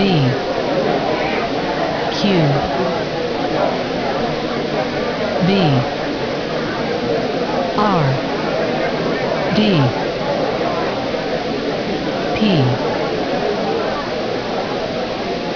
D Q B R D P